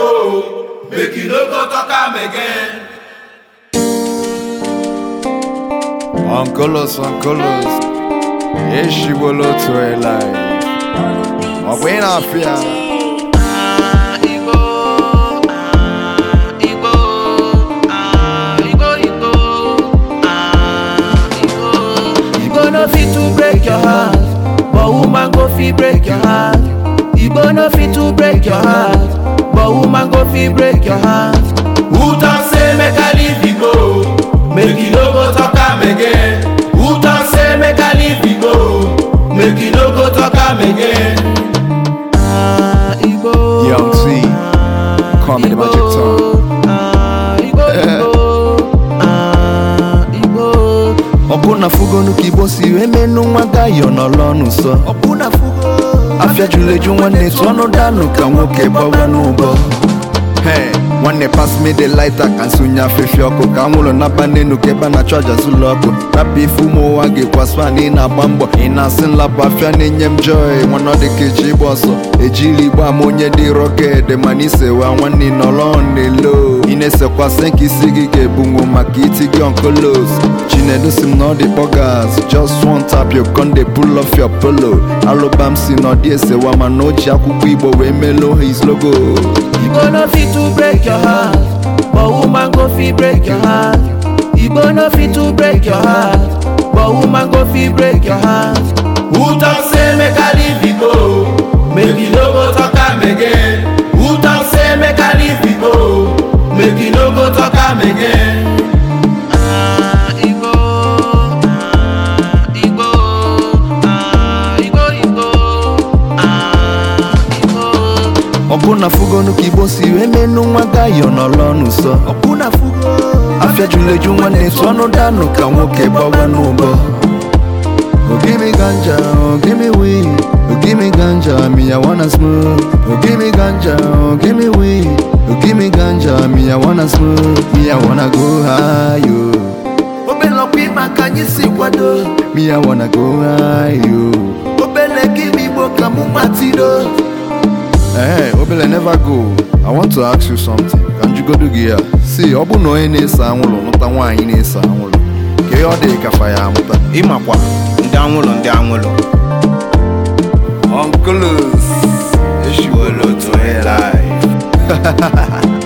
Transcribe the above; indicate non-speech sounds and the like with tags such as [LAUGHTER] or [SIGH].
go, make you no go talk am again. Uncolos, uncolos, yeshi bolo to a life. Mabwena ah, ah, fear. Ah, no fit to break your heart, but woman go fit break your heart. Igbo no fit to break your heart, but woman go fit break your heart who talk say make i leave you go make you no go talk am again who talk say make i leave you go make you no go talk am again ah, Igbo, Young Z, call me the magic tongue. Ah, Igbo, Igbo. Ah, ọbụna fugonu ka igbo si wee menụ nwa gayo n'ọlụ ọnụ nsọ afiajuleju juru eju nwanne tụọ ọnụ danụ ka nwoke gbawa n'ụbọ nwanne pass me the lighter ka nsonye afefe ọkụ ka anwụrụ naba n'enu ka ebe na-achụ aja zụlọ ọkụ naba ife ụmụ ụwa ga na ị na-agba mbọ ị na-asị nlapụ afịa na-enye m joy nwana dịka eji ịgba ọsọ ejiri igba ama onye dị rọked mana isewa nwanne nọrọ n'elo ị na-esekwasị nka isi gị ga-ebunwu maka iti gị onkolos chinedu si m na ọ dị Scorpio con dey pull off your polo Alobam si n'ọdị esewa mana o ji akwụkwọ Igbo wee melo his logo Igbo no fit to break your heart But woman go fit break your heart Igbo no fit to break your heart But woman go fit break your heart ọbụna fugonu ka igbo si wee nwa gayo n'ọlọ n'ụsọ afịa juru eju nwanne tụọnụ danụ ka nwoke gbawa n'ụbọ ogimi oh, ganja ogimi oh, wii ogimi oh, ganja miya wana smoke ogimi ganja ogimi wii ogimi ganja miya wana smoke Miya wana go high yo obele ọkwa ịma ka anyị si kwado Miya wana go high yo obele gị m igbo ka mụ matido ee obele never go i want to ask you something ka njigodo gị ya si ọ bụ na onye na esa anwụrụ nụta nwaanyị na esa anwụrụ ka ihe ọ dị kafa ya amụta ịmakwa ndị anwụrụ ndị anwụrụ onkulus eshiwolo to life [LAUGHS]